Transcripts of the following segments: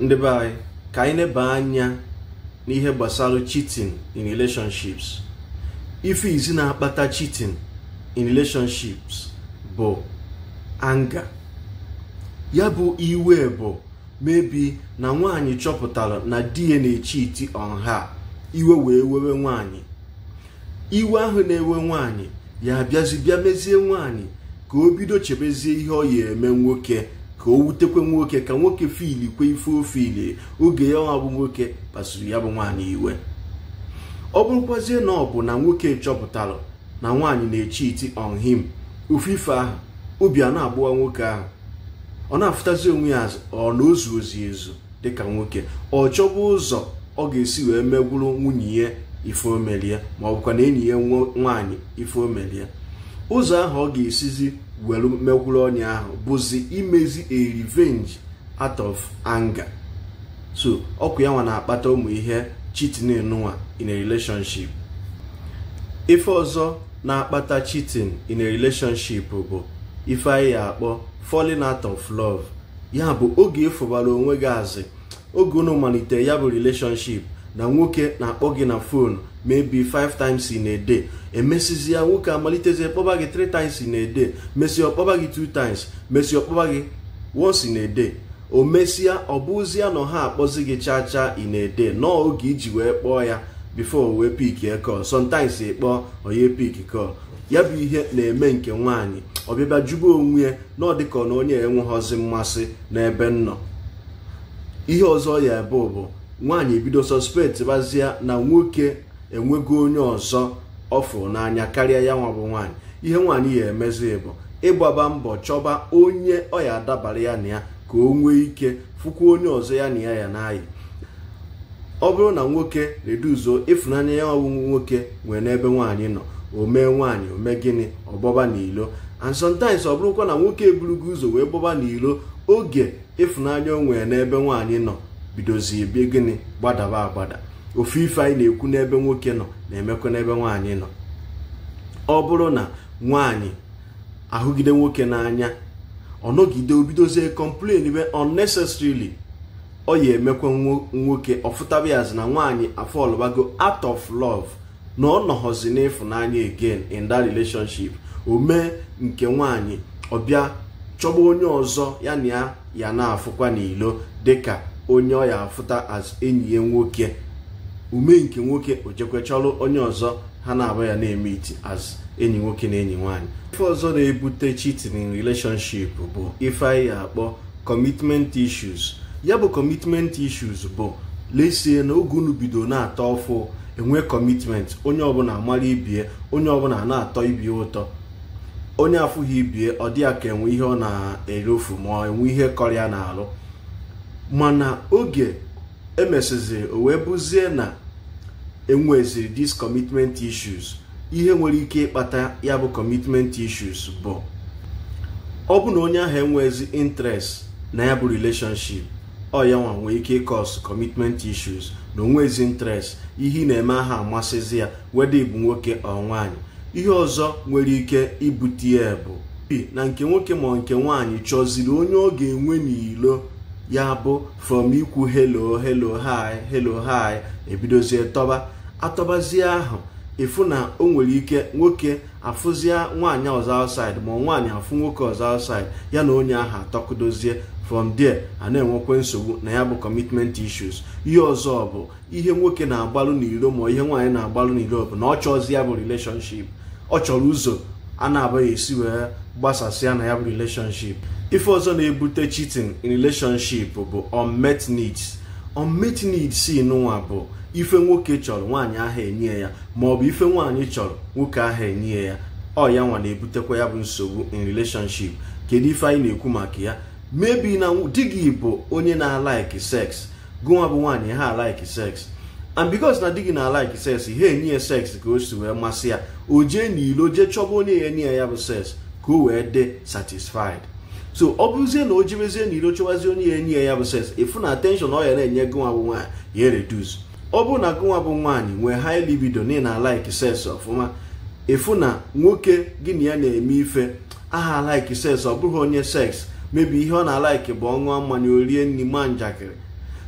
ndị be anyị ka anyị neba anya n'ihe gbasara cheating in relationships ife izi na-akpata cheating in relationships bụ anga ya bụ iwe bụ mebi na nwanyị chọpụtara na di ya na-echiti on iwe wee wewe nwanyị iwe ahụ na-ewe nwanyị ya bịazi bịa mezie nwanyị ka o bido chebezie ihe ọ ya eme nwoke ka o wutekwe nwoke ka nwoke fili kwe ife ile oge ya ọ bụ nwoke kpasuru ya bụ nwaanyị iwe ọ bụrụkwazie na ọ bụ na nwoke chọpụtalụ na nwaanyị na-echi iti on him ofufe ahụ obi a na-agbụwa nwoke ahụ ọ na-afụtazi onwe ya ọ na ozu ozi ezu dịka nwoke ọ chọba ụzọ ọ ga-esi wee megwuru nwunye ya ife omelie ma ọ bụkwa na enyi ya nwaanyị ife omelie ụzọ ahụ ọ ga-esizi were mekwuru ọnya ahụ bụzi imezi a revenge out of anger so ọkụ ya nwa na-akpata ụmụ ihe chitin nwa in a relationship ife ọzọ na-akpata chitin in a relationship bụ ife anyị akpọ falling out of love ya bụ oge ịfụbara e onwe gị azị oge unu malite ya bụ relationship na nwoke na-akpọ gị na fon maybe 5 times in a day emesizi nwoke amalitezie kpọba gị 3 times in a day mesịa ọkpọba gị 2 times mesịa ọkpọba gị once in a day o mesịa ọ bụzia na ha akpọzi gị cha cha in a day nọọ oge iji wee kpọọ ya before wee pik call sometimes ịkpọọ onye pik call ya bụ ihe na-eme nke nwaanyị ọbịbịa jube onwe ya na ọ dịka na onye enweghọzi mmasị n'ebe nnọ ihe ọzọ ya ebe bụ nwaanyị ebido sọspekt bazia na nwoke enwego onye ọzọ ọ fụrụ n'anya karịa ya nwa bụ nwaanyị ihe nwaanyị ya emezi bụ ịgbaba mbọ chọba onye ọ ya adabara ya na ya ka o nwee ike fụkwa onye ọzọ ya na ya ya n'ayị ọ bụrụ na nwoke reduzuo ịfụnanya ya ọwụwụ nwoke nwee n'ebe nwaanyị nọ o mee nwaanyị o mee gịnị ọgbọba n'ilo and sometimes ọ bụrụkwa na nwoke eburugo ụzọ wee gbọba n'ilo oge ịfụnanya o nwee n'ebe nwaanyị nọ bidozie bie gịnị gbadaba agbada ofu ife anyị na-ekwu n'ebe nwoke nọ na-emekwa n'ebe nwaanyị nọ ọ bụrụ na nwaanyị ahụgide nwoke n'anya ọ nọgide obidozie complain be unnecessarily ọ ya emekwa nwoke ọfụtaba ya na nwaanyị afọlụbago out of love na ọ nọghọzi n'ịfụnanya again in that relationship o mee nke nwaanyị ọ bịa chọba onye ọzọ ya na ya ya na-afụkwa n'ilo dịka onye ọ ya afụta as enyi ya nwoke ume nke nwoke ojekwe chọrọ onye ọzọ ha na-abụ ya na-eme iti as enyi nwoke na enyi nwaanyị ife ọzọ na-ebute cheating in relationship bụ ife anyị akpọ commitment issues ya bụ commitment issues bụ lesie na oge unu bido na-atọ ọfụ enwe commitment onye ọbụla amara ibie onye ọbụla na-atọ ibie ụtọ onye afụghị ibie ọ dị ya ka enwe ihe ọ na-erofu ma enwe ihe kọrịa na-alụ mana oge e emesịziri o wee bụzie na enweziri dis commitment issues ihe nwere ike ịkpata ya bụ commitment issues bụ ọ bụ na onye ahụ enwezi interest na ya bụ relationship ọ ya nwa nwee ike ịkọs commitment issues na onwezi interest ihe ị na-eme aha amasịzi ya weda ịbụ nwoke ọ nwaanyị ihe ọzọ nwere ike ibute ya bụ na nke nwoke ma nke nwaanyị chọziri onye ọ ga-enwe n'ilo ya bụ from ikwu helo helo hi helo hi ebidozie tọba atọbazie ahụ ịfụ na o nwere ike nwoke afụzie nwaanyị ọzọ outside ma nwaanyị afụ nwoke ọzọ outside ya na onye ahụ atọkudozie from there a na nsogbu na ya bụ commitment issues ihe ọzọ bụ ihe nwoke na-agbalụ n'iro ma ihe nwaanyị na-agbalụ n'iro bụ na ọ chọzi ya bụ relationship ọ chọrọ ụzọ a na-abaghị esi wee gbasasịa na ya bụ relationship ife ọzọ na-ebute cheating in relationship bụ unmet needs unmet needs si bụ ife nwoke chọrọ nwaanyị ahụ enye ya ma ọ bụ ife nwaanyị chọrọ nwoke ahụ enye ya ọ ya nwa na-ebutekwa ya bụ nsogbu in relationship kedu ife anyị na-ekwu maka ya mebi na di gị bụ onye na-alaiki sex gụnwa bụ nwaanyị ha alaiki sex and because na di gị na-alaiki sex ha enye ya sex ka o si wee masị ya o jee n'ilo jee chọba onye ya enye ya ya bụ sex ka o wee dị satisfied so ọ bụzie na o jibezie na iro chọwazie onye ya enyi ya bụ sens ịfụ na atenshọn ọ na-enye gụnwa bụ nwaanyị ya reduz ọ bụrụ na gụnwa bụ nwaanyị nwee high libido na ị na-alaiki sens ọfụma ịfụ na nwoke gị na ya na-eme ife aha alaiki sens ọ bụghị onye seks mebi ihe ọ na-alaiki bụ ọnwa mmanya orie nri njakịrị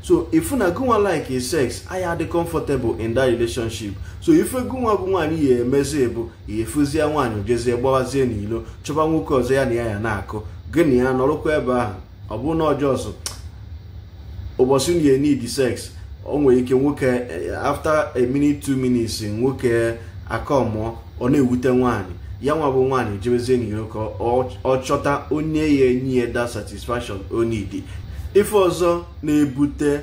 so ịfụ na gụnwa like sex anyị adị comfortable in that relationship so ife gụnwa bụ nwaanyị ya emezi bụ ya efuzie nwaanyị jezie gbawazie n'ilo chọba nwoke ọzọ ya na ya ya na-akụ gị na ya nọrọkwa ebe ahụ ọ bụrụ na ọjọọsụ ụbọchị unu need sex o nwere ike nwoke after a minute two minutes nwoke akọmụọ ọ na-ewute nwaanyị ya nwa bụ nwaanyị jebezie na ka ọ chọta onye ya enyi ya da satisfaction o ife ọzọ na-ebute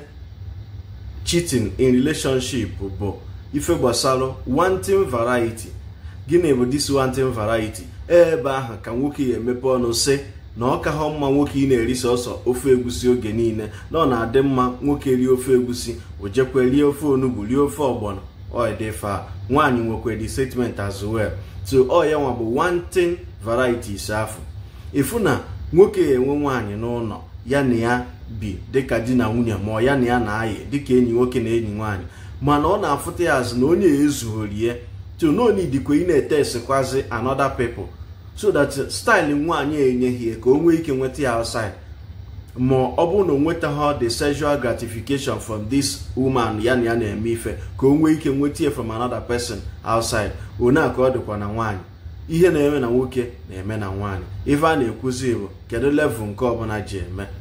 chitin in relationship bụ ife gbasara wanting variety gịnị bụ this wanting variety ebe ahụ ka nwoke ya emepe ọnụ sị na ọ ka mma nwoke ị na-eri sọsọ ofe egusi oge niile na ọ na-adị mma nwoke rie ofe egusi ojekwe rie ofe onugbu rie ofe ọgbọnọ oidfa nwaanyị nwekwe the statement as well so ọ ya nwa bụ wanting varieties afọ ịfụ na nwoke enwe nwaanyị n'ụlọ ya na ya bi dịka di na nwunye ma ya na ya na-ayị dịka enyi nwoke na enyi nwaanyị mana ọ na-afụta ya azụ na onye ezughori ya to no ị na-ete anoda another so that style nwaanyị enyeghị ka o nwee ike nweta ya outside ma ọ bụrụ na o ha the sexual gratification from this woman ya na ya na-eme ife ka o nwee ike nweta ya from another person outside one ka ọ dịkwa na nwanyị ihe na-eme na nwoke na-eme na nwanyị ife a na-ekwuzi bụ kedu level nke ọbụla ji eme